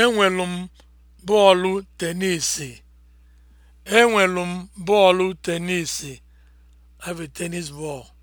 Enwelu m bọọlụ tenisi. Enwelu m bọọlụ tenisi. I have a